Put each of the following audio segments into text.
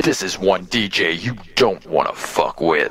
This is one DJ you don't wanna fuck with.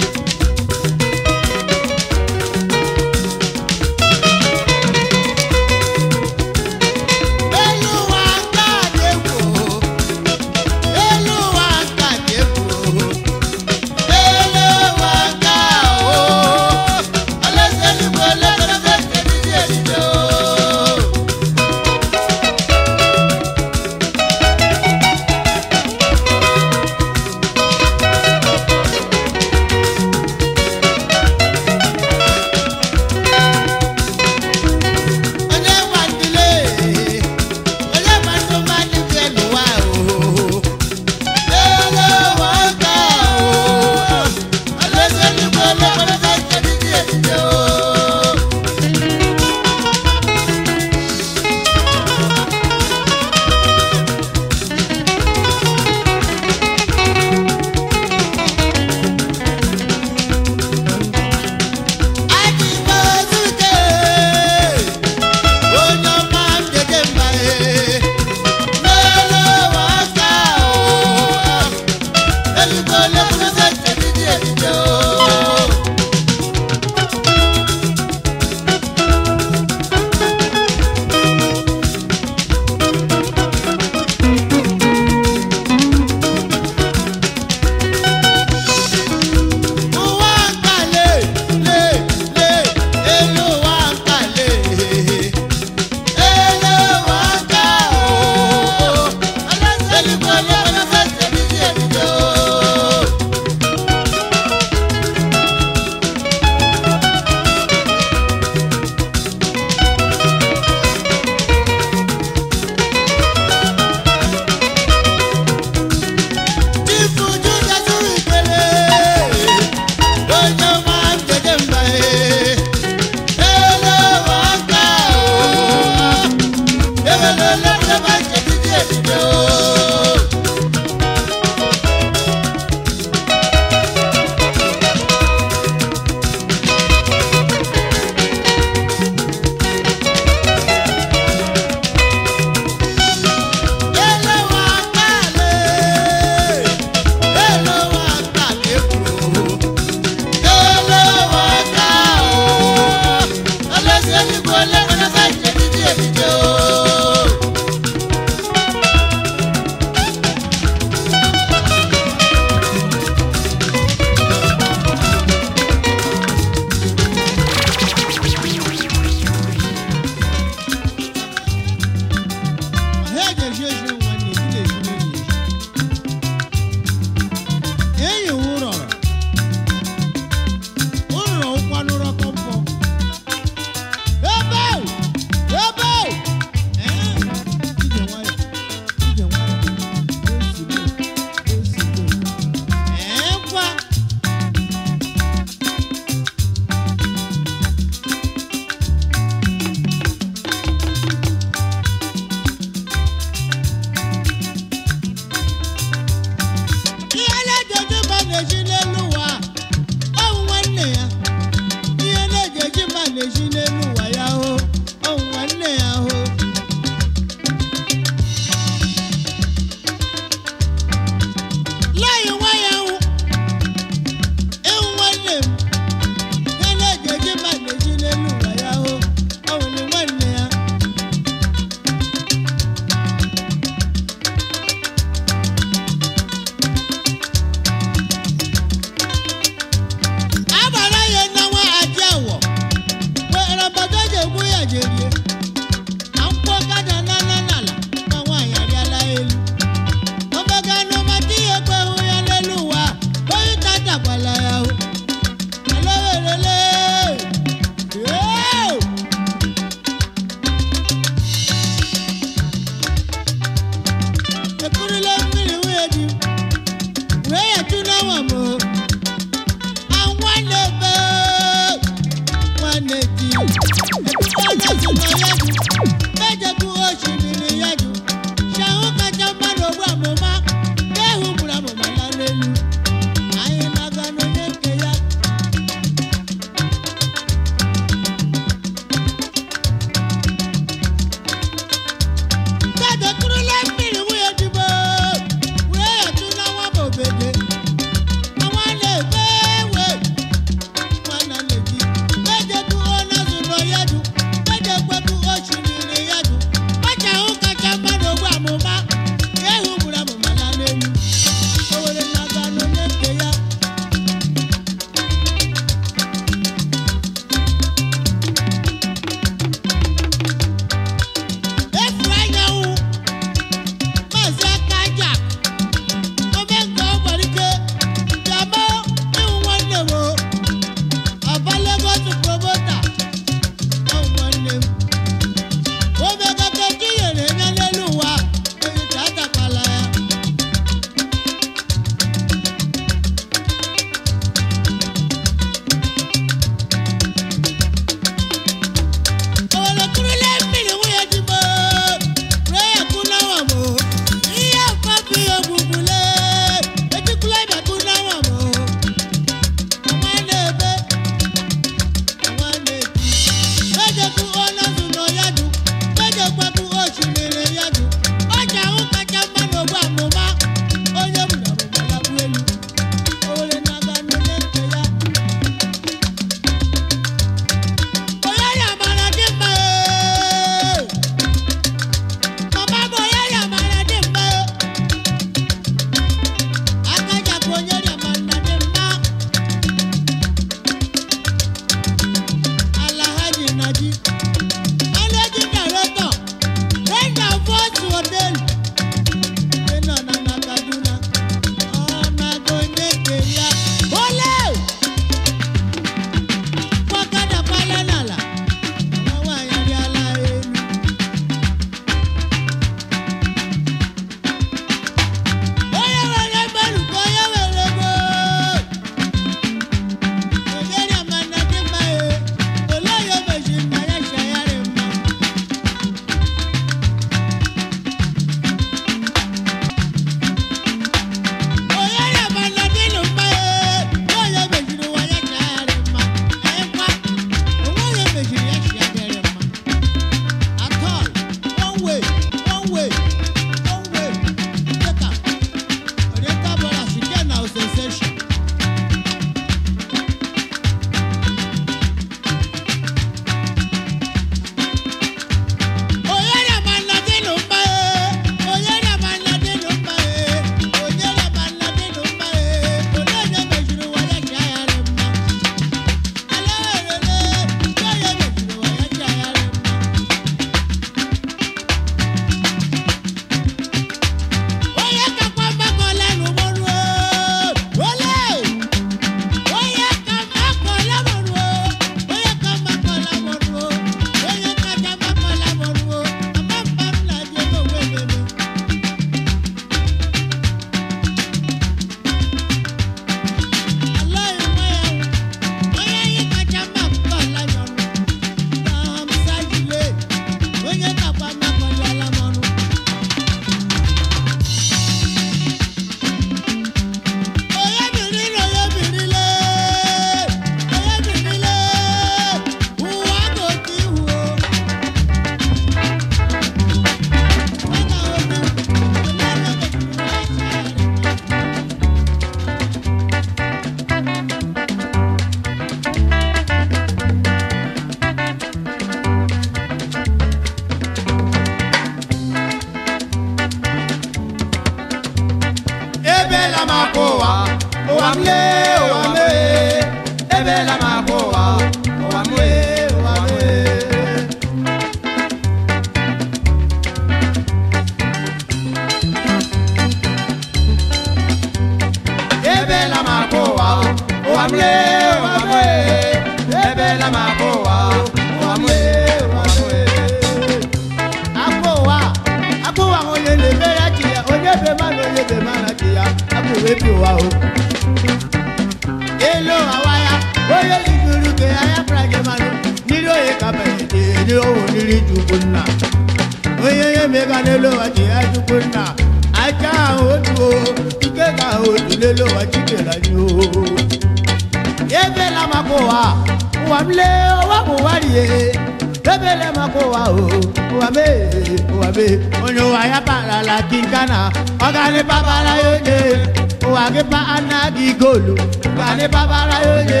gị ana gị goolu gani babara ya onye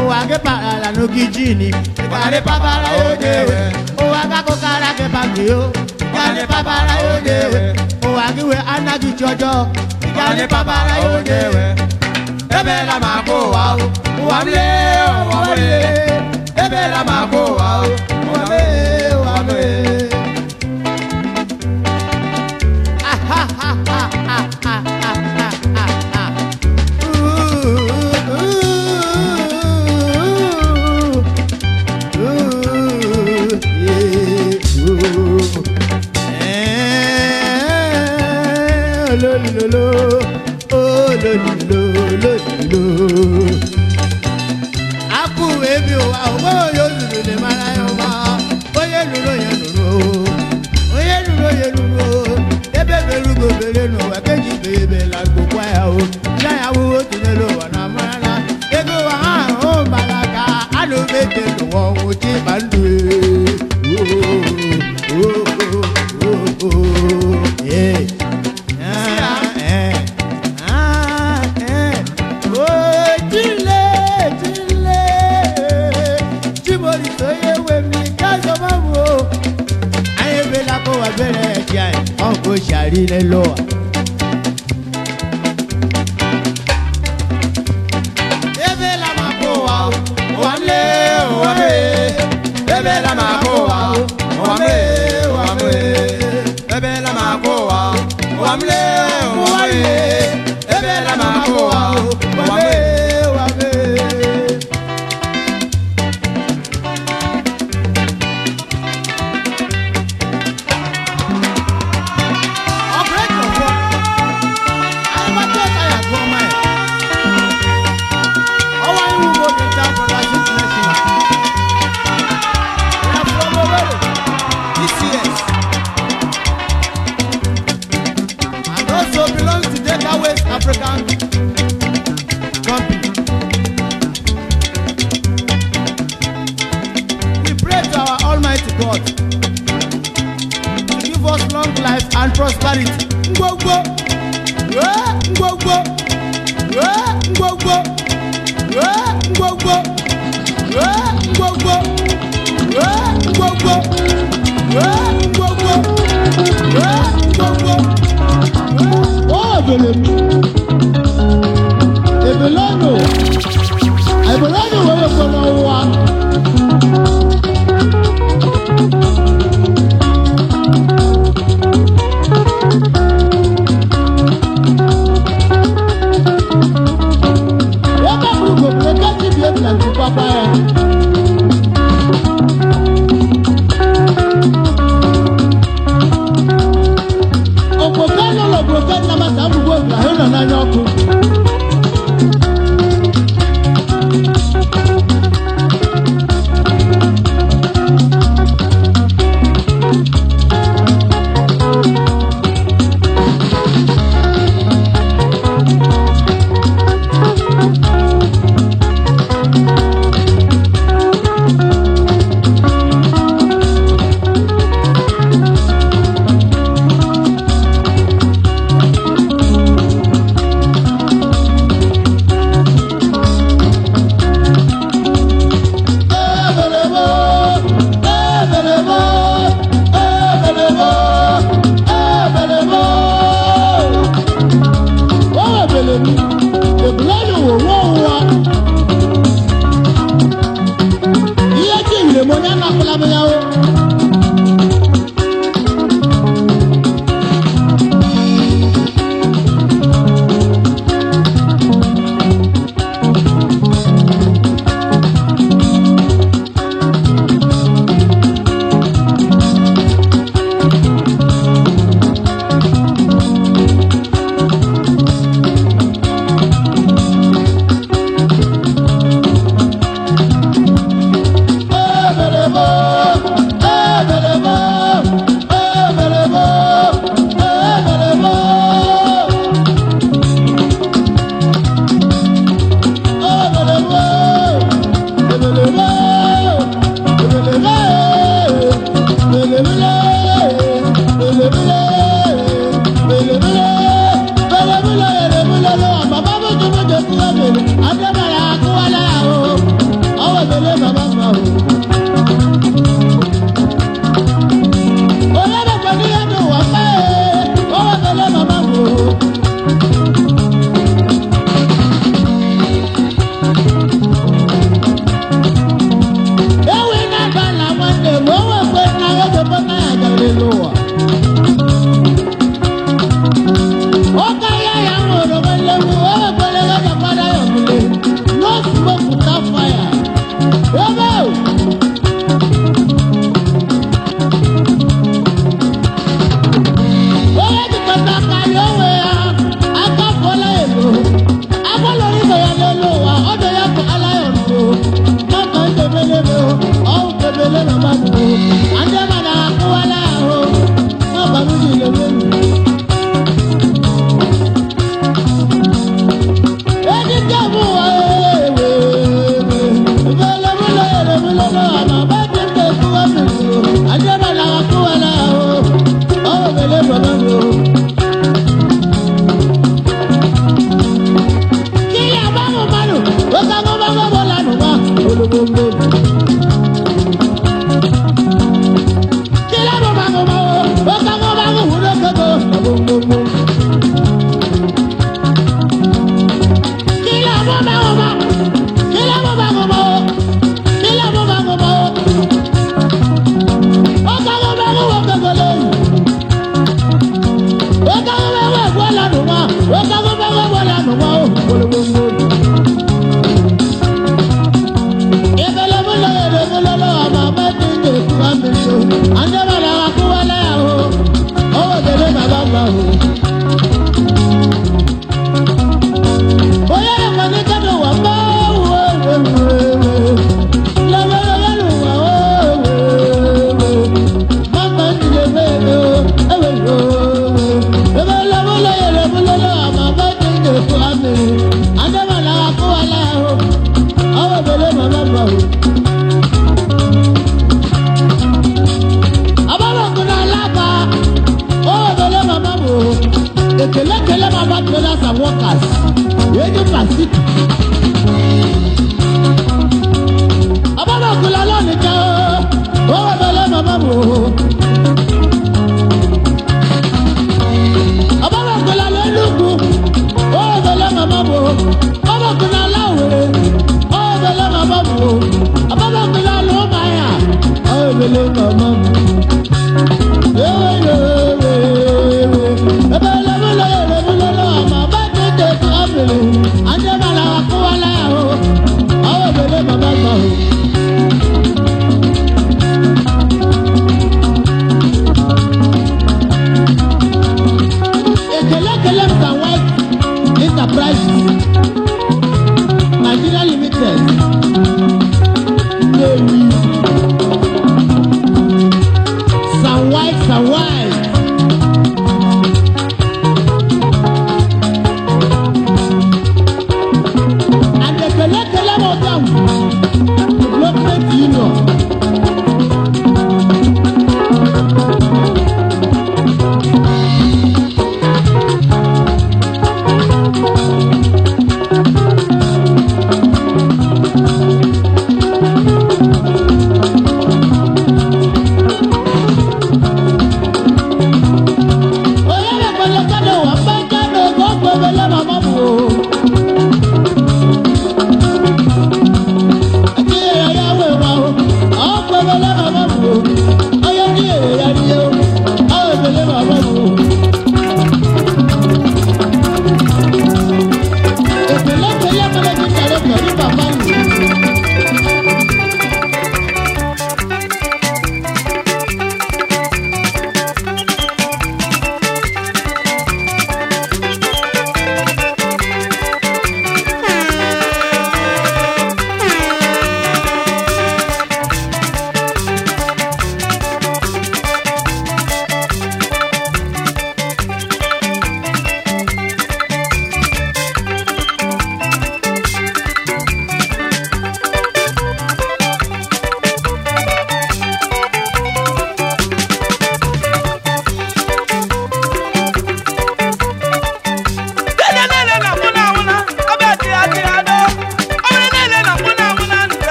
ụwa gị n'ogige n'oge jini gani babara ya onye ụwa gị akụkara gị bagio gani babara ya onye ụwa gị wee anaghị chi ọjọọ babara ya onye ebeela m akụ ụwa ụwa m lee m lee ebeela m akụ ụwa ụwa God. Give us long life and prosperity. Ngwogwo. Eh, Ngwogwo. Eh, Ngwogwo. Eh, Ngwogwo. Ngwogwo. Ngwogwo. Ngwogwo. Ngwogwo. Oh, Ebeleno.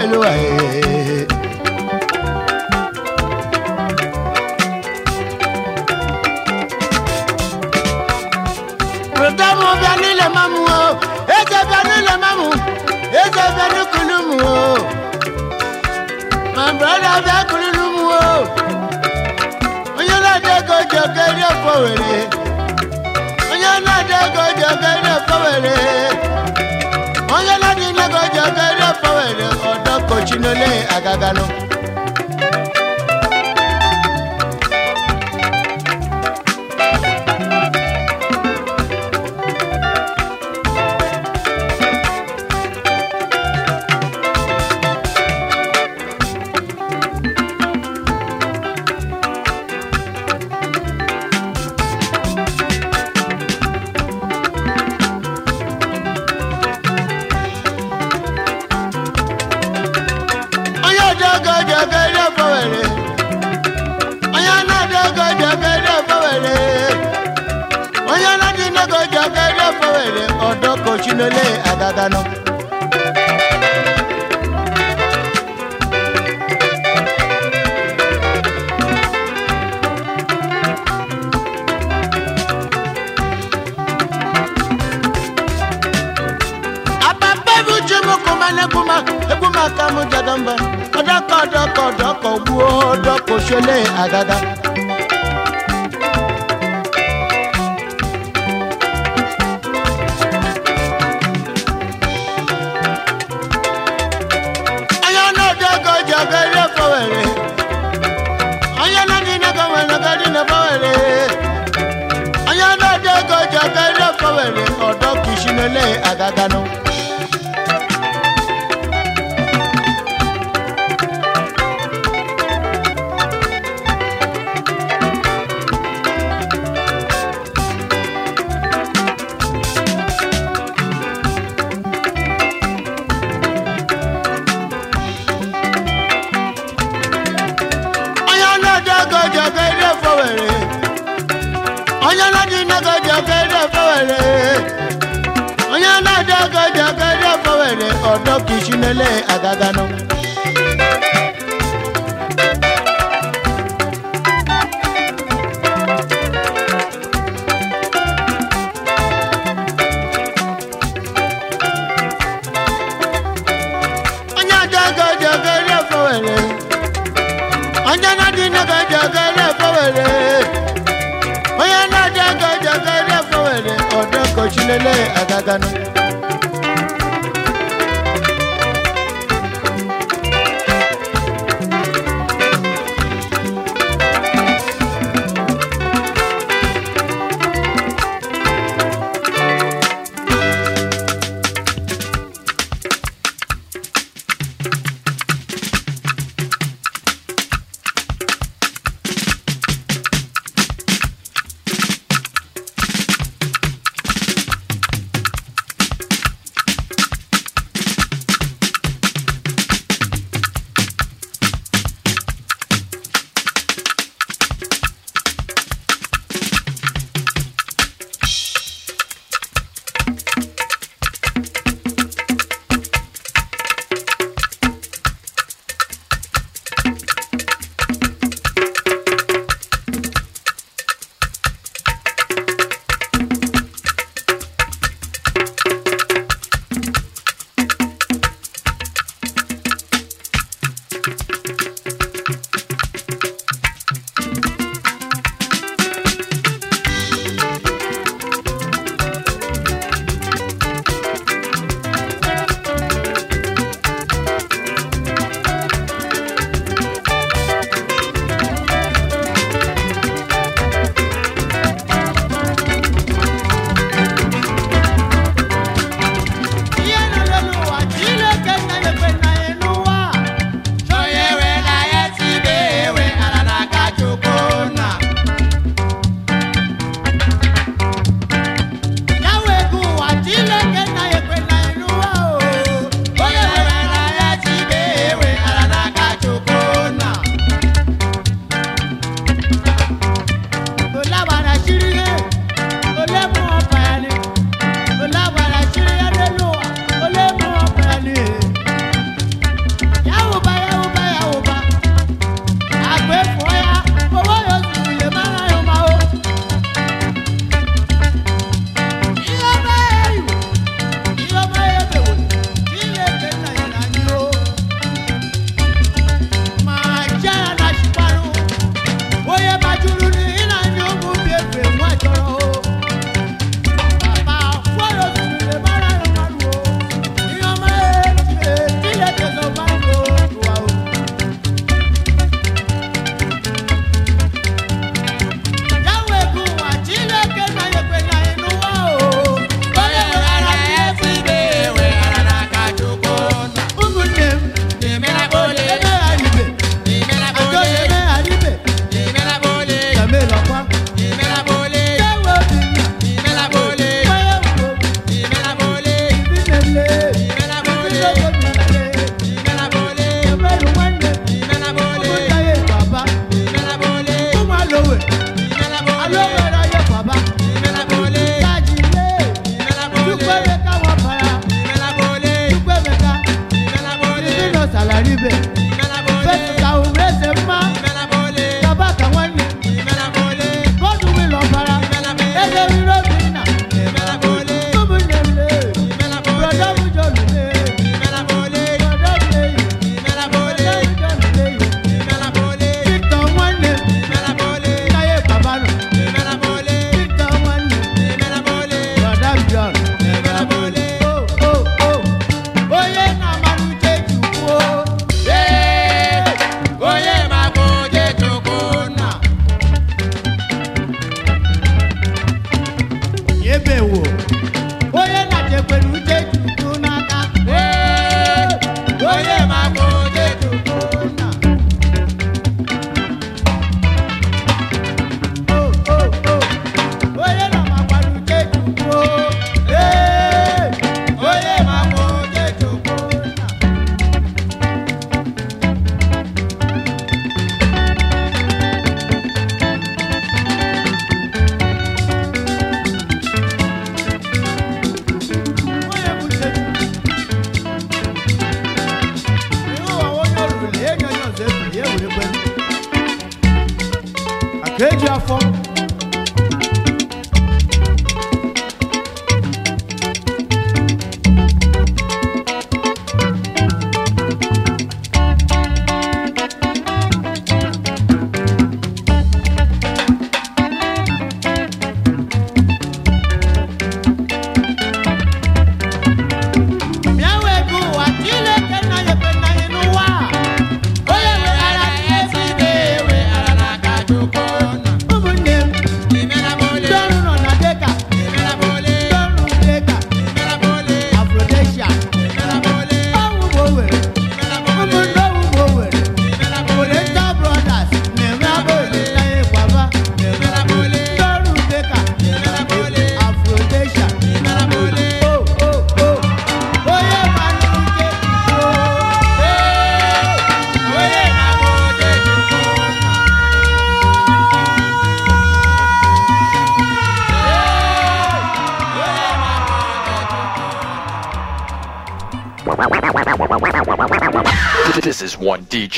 Eloah chinole agagano. lele agaganụ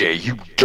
you